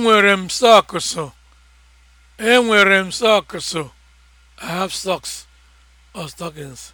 Enwere m sọọkụsụ. Enwere m sọọkụsụ. I have socks or stockings.